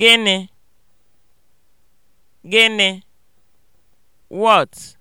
Gịnị? Gịnị? What?